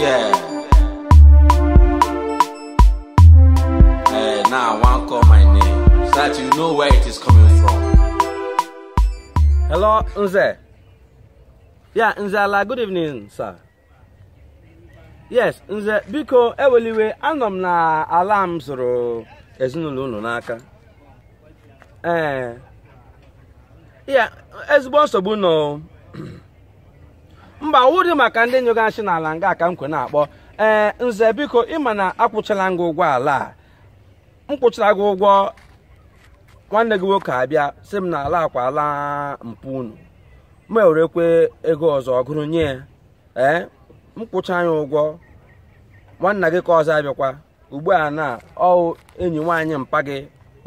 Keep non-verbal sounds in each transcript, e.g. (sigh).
Yeah. Hey, now I want to call my name so that you know where it is coming from. Hello, Nze. Yeah, like good evening, sir. Yes, Nze, biko, eweliwe, anọ m na ala m zụrụ ezinụlọ unu n'aka. Ee. Eh, yeah, ezigbo nsogbu nọ. (clears throat) mba wụdị maka ndị nyoga n'ala nga ka m kwe na-akpọ ee eh, nze biko ịma na akwụchala gị ụgwọ ala a m kwụchara gị ụgwọ nwanne gị nwoke abịa si m na ala akwa ala mpụ unu ma ewerekwe ego ọzọ ọgụrụ nye ee eh, m kwụcha ụgwọ nwanna gị ka ọzọ abịakwa ugbu a na ọ enyi nwaanyị mpa gị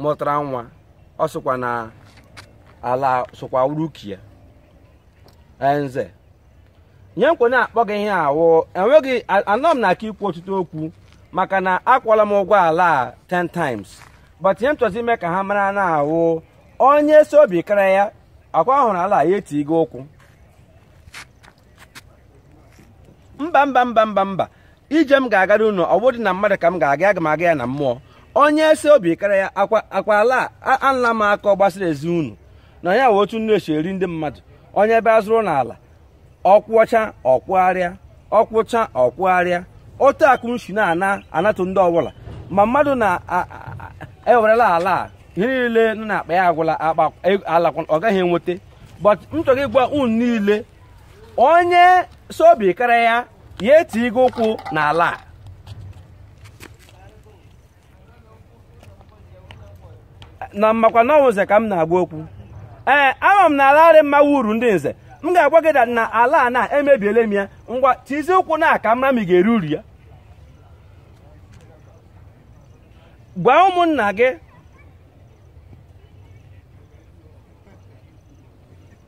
mụtara nwa ọ sịkwa na ala sokwa urukie eh, nze nye nkwe na-akpọ gị ihe awụ enweghị anọ m na aka ikwu ọtụtụ okwu maka na akwụọla m ụgwọ ala a 10 times but ihe m chọzi ime ka ha mara na awụ onye si obi kara ya akwa ahụrụ ala ya etigo ụkwụ mba mba mba mba mba ije m ga-agara unu ọ bụdị na mmadụ ka m ga-aga aga m aga ya na mmụọ onye si obi kara ya akwa ala anla m aka ọ gbasara ezi unu na ya wụ otu nnu esi eri ndị mmadụ onye ebe azụrụ n'ala ọkwụcha ọkwụgharịa ọkwụcha ọkwụgharịa otu akụnshi na-ana anatụ ndị ọbụla ma mmadụ na-ewerela ala ihe niile nọ na-akpa ya agwụla akpa e, alakwa ọ gaghị enweta but m chọrọ ịgwa unu niile onye sobi karịa ya ya eti gị ụkwụ na a na mmakwa n'ọwụze ka m na-agba okwu ee ama m na ala arị mma wuru ndị nze m ga-agwa gị na ala a na emebiele m ya ngwa tizie ụkwụ na aka mara ma ị uru ya gwa ụmụnna gị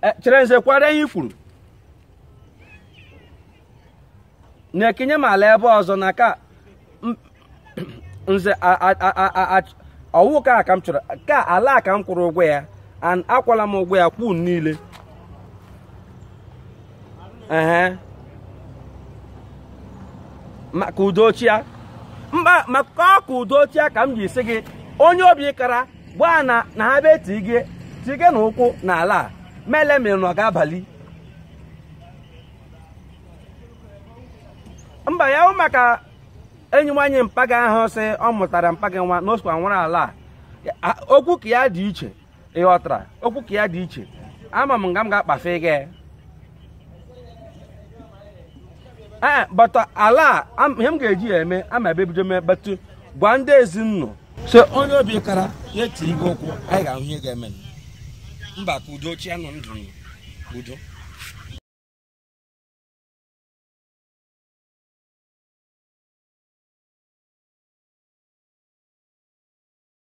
e, chere nze kwara ihe ifuru na-ekenye m ala ebe ọzọ na ka (clears throat) nze ọwụ ka ka m chọrọ ka ala ka m kwụrụ ụgwọ ya akwala m ụgwọ ya kwụ niile ehe maka udochia mba maka ọka udochia ka m ji si gị onye obi kara gbaa na na ha bee ti gị na ụkwụ n'ala a mele mere na ọ abalị mba ya maka enyi nwaanyị mpaga ahụ si ọ mụtara mpaga nwa na nwere ala a okwu ka ya dị iche ịghọtara okwu ka ya dị iche ama m nga m ga-akpafe gị Eh, bata uh, ala ihe m ga-eji ya eme ama ebe bido mee batụ uh, gwa ndị ezinụlọ so onye obi kara ya etiri gị ụkwụ anyị ga-ahụ ihe ga-eme mba ka udo chi anọ ndụ udo